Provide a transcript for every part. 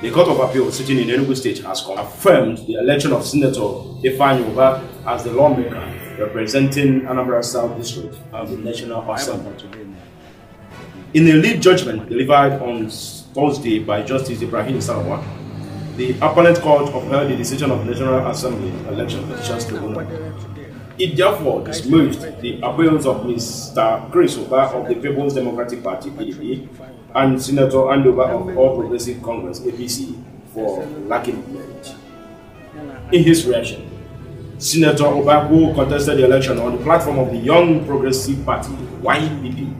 The Court of Appeal sitting in Enugu State has confirmed the election of Senator Ifeanyi as the lawmaker representing Anambra South District as the National Assembly. In a lead judgment delivered on Thursday by Justice Ibrahim Sarawa, the appellate court upheld the decision of the National Assembly Election Petitions Tribunal it therefore dismissed the appeals of Mr. Chris Oba of the People's Democratic Party, PDP, and Senator Andover of All Progressive Congress, APC, for lacking merit. In his reaction, Senator Oba, who contested the election on the platform of the Young Progressive Party, YPP,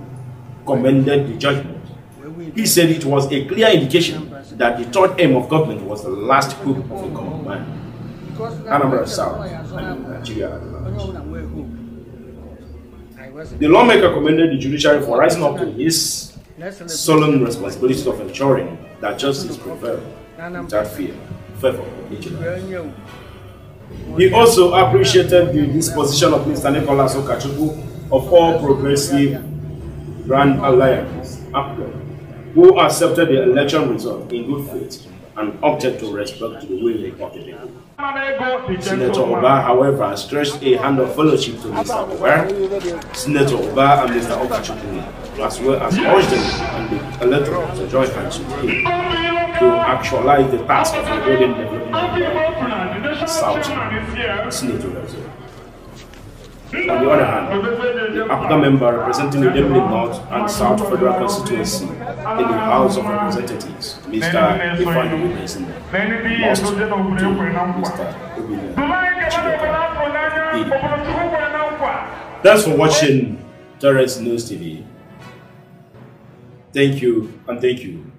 commended the judgment. He said it was a clear indication that the third aim of government was the last hope of the government. Anambra South, and Nigeria. The lawmaker commended the judiciary for rising up to his solemn responsibility of ensuring that justice prevailed. without fear, favor, vigilance. He also appreciated the disposition of Mr. Nicholas Okachuku of all progressive Grand Alliance, APGA, who accepted the election result in good faith an object of respect to the women of the people. Senator Oba, however, stretched a hand of fellowship to Mr. Ower, Senator Oba and Mr. Okachukwu, as well as urged them and the electorate to join hands to actualize the task of rebuilding the of South Senator Brazil. On the other hand, the APGA member representing the Demley North and South Federal Constituency in the House of Representatives, Mr. Ifan Wilson, Thanks for watching Torres News TV. Thank you and thank you.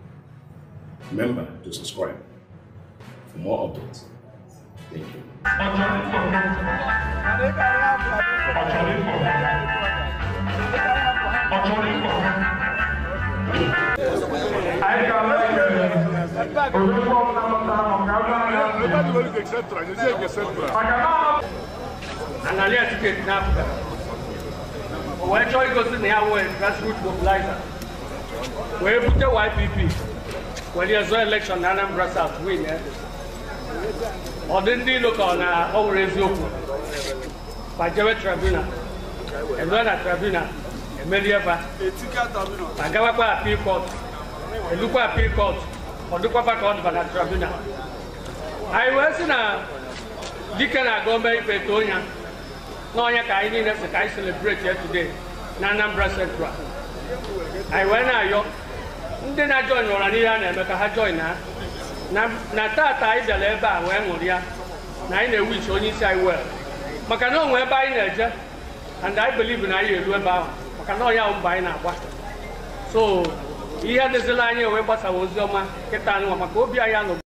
Remember to subscribe for more updates. Thank you. Anyị ga-ala ekele orukwu ọbụla mụtara maka abụọ analia ticket na Africa. Wee chọọ igosi na ya wee grassroot mobilizer. Wee bute YPP. Wee dị ezo election na Anambra South win. Eh? ọ dị ndị ilo ka ọ na ọ wụrụ eziokwu ma jewe tribunal eruo na tribunal emerie ba ma gawakwa appeal court elukwa appeal court ọ dịkwaba ka ọ dịba na tribunal anyị wee sị na dike na gọọmenti ikpe too ya na onye ka anyị niile si ka anyị celebrate ya today na Anambra Central anyị wee na-ayọ ndị na-ajọin ụra n'ihe a na-eme ka ha join ha na tata anyị bịara ebe a wee ya na anyị na iche onye isi anyị wee maka na onwe ebe anyị na-eje and I believe na anyị eru ebe ahụ maka na ọnya mba anyị na-agba so ihe dịzila anyị wee gbasawa ozi ọma kịta anyị maka obi anyị anọ